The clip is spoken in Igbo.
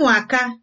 ụmụaka